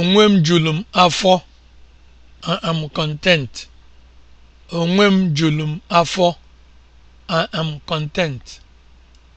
Onwe m julu m afọ. I am content. Onwe m content.